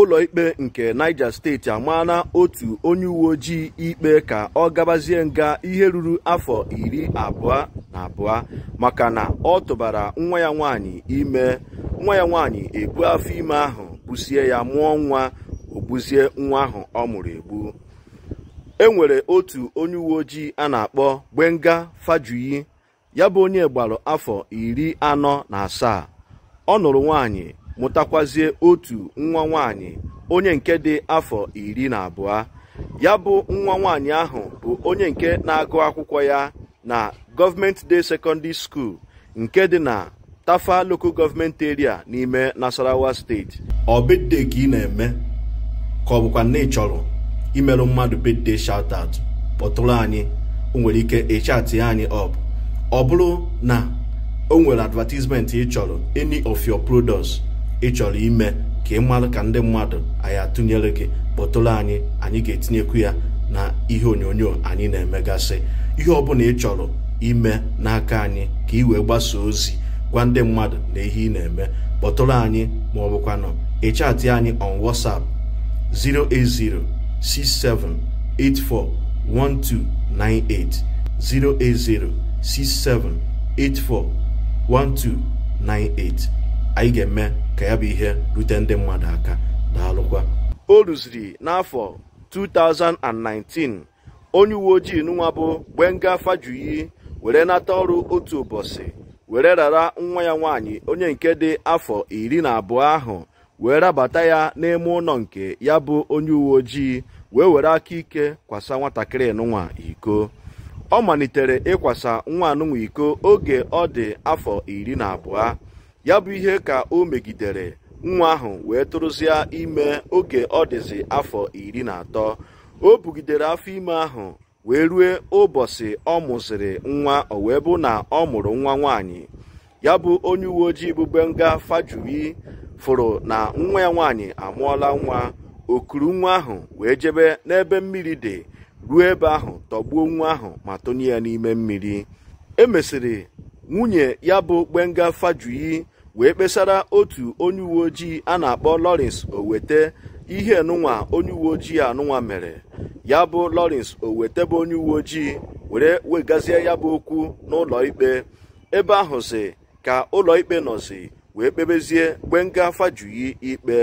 ụlọikpe nke Niger steeti amaala otu onye uwe ojii ikpe ka ọ gabazie nga ihe ruru afọ iri abụọ na abụọ maka na ọ tụbara nwa ya nwanyị ime nwa ya nwaanyị ebu afọ ime ahụ gbusie ya mụọ nwa ogbuzie nwa ahụ ọ mụrụ egbu e nwere otu onye uwe ojii a na-akpọ Gbenga Fajuyi ya bụ onye gbaru afọ iri anọ na asaa ọ nụrụ nwaanyị mụtakwazie otu nwa nwanyị onye nke dị afọ iri na abụọ ya bụ nwa nwanyị ahụ bụ onye nke na-agụ akwụkwọ ya na gọọmenti Day Secondary School nke dị na Tafa Local Government Area n'ime Nasarawa steeti ọ bedde ka ị na-eme ka ọ bụkwa na ị chọrọ imerụ mmadụ bedde shout out kpọtụrụ anyị o nwere ike ịchatị anyị ọbụ ọ bụrụ na o nwere advertisement ị chọrọ any of your products ịchọrọ ime ka ị ka ndị mmadụ anyị atụnyere gị kpọtụrụ anyị anyị ga-etinyekwu ya na ihe onyonyo anyị na-emegasị ihe ọbụla ị chọrọ ime n'aka anyị ka ị wee gbasa ozi gwa ndị mmadụ na ihe ị na-eme kpọtụrụ anyị ma ọ bụkwanụ ịchatị anyị on WhatsApp 08067841298 08067841298 anyị ga-eme ka ya bụ ihe rute ndị mmadụ aka daalụkwa o rụziri n'afọ 2019 onye uwe ojii nwa bụ Gbenga Fajuyi were nata ọrụ otu ụbọchị were rara nwa ya nwaanyị onye nke dị afọ iri na abụọ ahụ wee rabata ya n'ime ụlọ nke ya bụ onye uwe ojii wee were aka ike kwasa nwatakịrị nwa iko ọ malitere ịkwasa nwa anụnwa iko oge ọ dị afọ iri na abụọ ya bụ ihe ka o megidere nwa ahụ wee tụrụzịa ime oge ọ dịzị afọ iri na atọ o bugidere afọ ime ahụ wee rue ụbọchị ọ mụzịrị nwa o wee bụ na ọ mụrụ nwa nwaanyị ya bụ onye uwe ojii bụ benga fajuri fụrụ na nwa ya nwaanyị amụọla nwa okuru nwa ahụ wee jebe n'ebe mmiri dị ruo ebe ahụ tọgbuo nwa ahụ ma tụnye ya n'ime mmiri emesịrị nwunye ya bụ gbenga fajuyi wee kpesara otu onye uwe ojii a na-akpọ Lawrence Owete ihe nụnwa onye uwe ojii anụnwa mere ya bụ Lawrence Owete bụ onye uwe ojii were wegazie ya bụ okwu n'ụlọ ikpe ebe ahụ si ka ụlọ ikpe nọzi wee kpebezie nga Fajuyi ikpe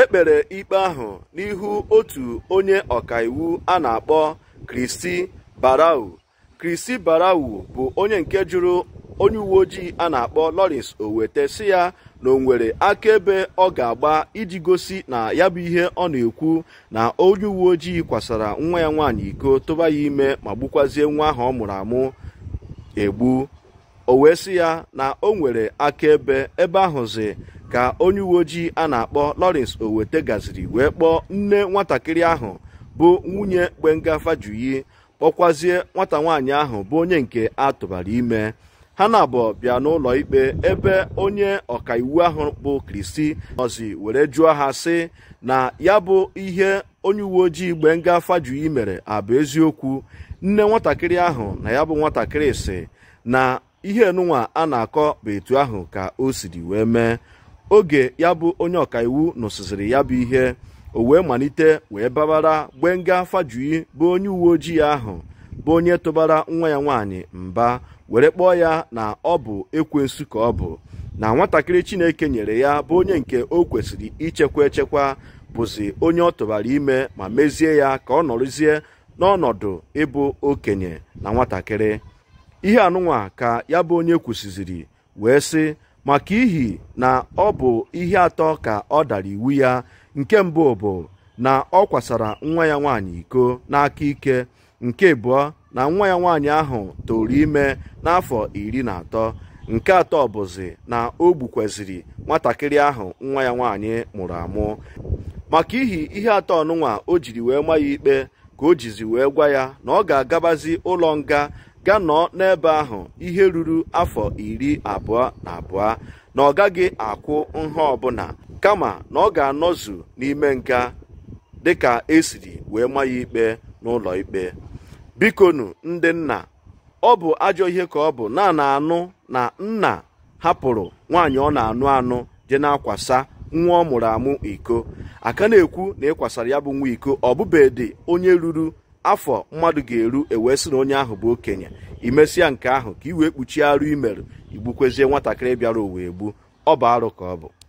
ekpere ikpe ahụ n'ihu otu onye ọkaiwu a na-akpọ Kristi Barau Kristi Barau bụ onye nke jụrụ onye uwe ojii a na-akpọ Lawrence Owete si ya na o nwere akaebe ọ ga-agba iji gosi na ya bụ ihe ọ na-ekwu na onye uwe ojii kwasara nwa ya nwaanyị iko tụba ya ime ma gbukwazie nwa ahụ ọ mụrụ amụ egbu o wee si ya na o nwere akaebe ebe ahụzi ka onye uwe ojii a na-akpọ Lawrence Owete gaziri wee kpọọ nne nwatakịrị ahụ bụ nwunye Gbenga Fajuyi kpọkwazie nwata nwaanyị ahụ bụ onye nke a tụbara ime ha na abụ bịa n'ụlọ ikpe ebe onye ọkaiwu ahụ bụ kristi nọzi were jụọ ha sị na ya bụ ihe onye uwe ojii Gbenga Fajuyi mere abụ eziokwu nne nwatakịrị ahụ na ya bụ nwatakịrị si na ihe enunwa a na-akọ bụ etu ahụ ka o siri wee mee oge ya bụ onye ọkaiwu nụsịsịrị ya bụ ihe o wee malite wee babara Gbenga Fajuyi bụ onye uwe ojii ahụ bụ onye tụbara nwa ya nwaanyị mba were kpọọ ya na ọ bụ ekwensu ka ọ bụ na nwatakịrị chineke nyere ya bụ onye nke o kwesịrị ichekwa echekwa bụzi onye ọ tụbara ime ma mezie ya ka ọ nọrụzie n'ọnọdụ ịbụ okenye na nwatakịrị ihe anụnwa ka ya bụ onye kwusiziri wee sị maka ihi na ọ bụ ihe atọ ka ọ dara iwu ya nke mbụ bụ na ọ kwasara nwa ya nwaanyị iko n'aka ike nke abụọ na nwa ya nwaanyị ahụ toro ime n'afọ iri na atọ nke atọ bụzi na o gbukwaziri nwatakịrị ahụ nwa ya nwaanyị mụrụ amụ maka ihi ihe atọ ọnụnwa o jiri wee ma ya ikpe ka o jizi wee gwa ya na ọ ga-agabazi ụlọ nga ga nọọ n'ebe ahụ ihe ruru afọ iri abụọ na abụọ na ọ gaghị akwụ nha ọbụla kama na ọ ga-anọzu n'ime nga dịka esiri wee ma ya ikpe n'ụlọ ikpe bikonu ndị nna ọ bụ ajọ ihe ka ọ bụ na na anụ na nna hapụrụ nwaanyị ọ na-anụ anụ dị na-akwasa nwa ọ mụrụ amụ iko aka na-ekwu na ịkwasara ya bụ nwa iko ọ dị onye ruru afọ mmadụ ga-eru ewee sị na onye ahụ bụ okenye imesịa nke ahụ ka i wee kpuchie arụ imerụ igbukwezie nwatakịrị bịara owe egbu ọ bụ arụ ka ọ